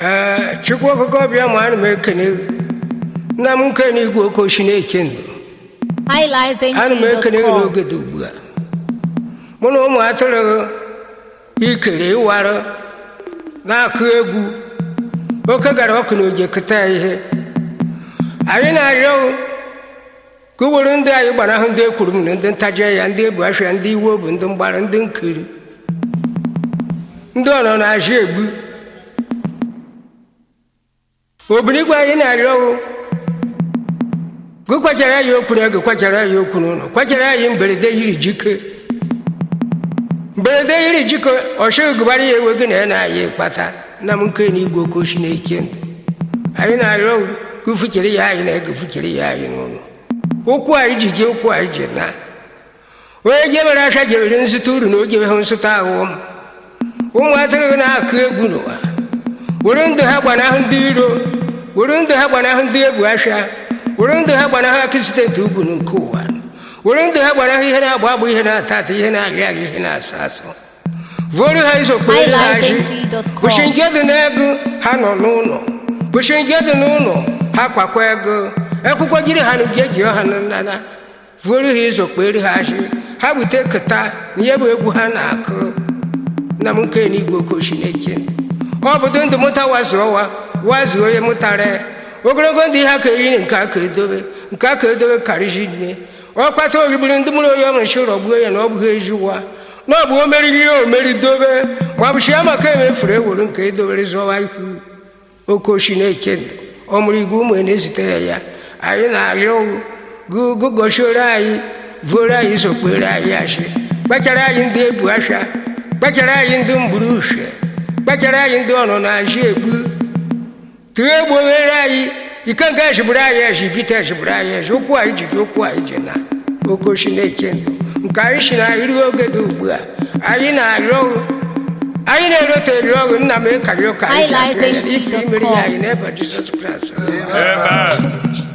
ee eh, chukwu bịa ma anụ m ekene nna m nkene igwe okochi na-eke ndụ Anụ m ekene gị n'oge dị ugbu a mụ na ụmụ atụrụ ikere ịwarụ na-akụ egwu oke gara ọkụ na oje keta ya ihe anyị na-arịọ ka uwere ndị anyị gbara ahụ ndị ekwuru m na ndị ntaje ya ndị ebu afịa ndị iwe bụ ndị mgbara ndị nkiri ndị ọnọ na-azụ egbu obiligwe anyị na-arịọ gị kwachara anyị okwu na gị kwachara anyị okwu n'ụlọ Kwachara anyị mberede yiri jike mberede yiri jike ọchịgụbara ya ewe gị na ya na-aya ịkpata na m nke na igwe oke oshi na-eche ndụ. anyị na-arịọ gị fuchere ya anyị na ego fuchere ya anyị n'ụlọ ụkwụ anyị ji jee ụkwụ anyị ji na onye jebere acha jebere nzụta uru na o jebeghị nzụta ahụhụ m ụmụ atụrụ na-akụ egwu n'ụwa were ndụ ha gbanahụ ndị iro were ndụ ha gbanahụ ndị egwu asha were ndụ ha gbanahụ akịsidentị ugwu nke ụwa were ndụ ha gbanahụ ihe na-agba agba ihe na-ata ata ihe na-ahịa ahịa ihe na-asọ asọ vụrụ ha izokpere ha ji kpụchi njedụ n'ego ha nọ n'ụlọ kpụchi njedụ n'ụlọ ha kwakwa ego ekwụkwọ jiri ha n'uje ji ha n'nana vụrụ ha izokpere ha ji ha bute keta na ihe bụ egwu ha na-akụ na m nke n'igwe okochi na-eche ọ bụdo ndụ mụta wa zụọwa wazuo onye mụtara ogologo ndụ ihe aka eri nke aka edobe nke aka edobe karịzi nne ọ kpata ohigburu ndị mụrụ onye ọmụchi ụlọ gbuo ya na ọ bụghị ezi ụwa na ọ bụ o meriri ya omeri dobe ma ọ bụchi ya maka emefuru ewuru nke edobere zọwa ihu oke ochi na-eke ndụ ọmụrụ igwe ụmụ na-ezute ya ya anyị na-arịọ gụgọchiore anyị vuoro anyị zokpere anyị achị kpachara anyị ndị ebu afịa kpachara anyị ndị mgburu uhie kpachara anyị ndị ọnụ na-ajị egbu egbuwere anyị ikenga ejigburu anyị eji bite ejigburu anyị eji ụkwụ anyị ji okwu anyị ji na ogo chineke ndụ nke anyị si na anyị ruo oge dị ugbu a anyị na-arịọ anyị na-erote eri ọrụ nna m ịkarị e ụka anyị ga-abịa ife imeri ya anyị n'ebe Jizọs Kraịst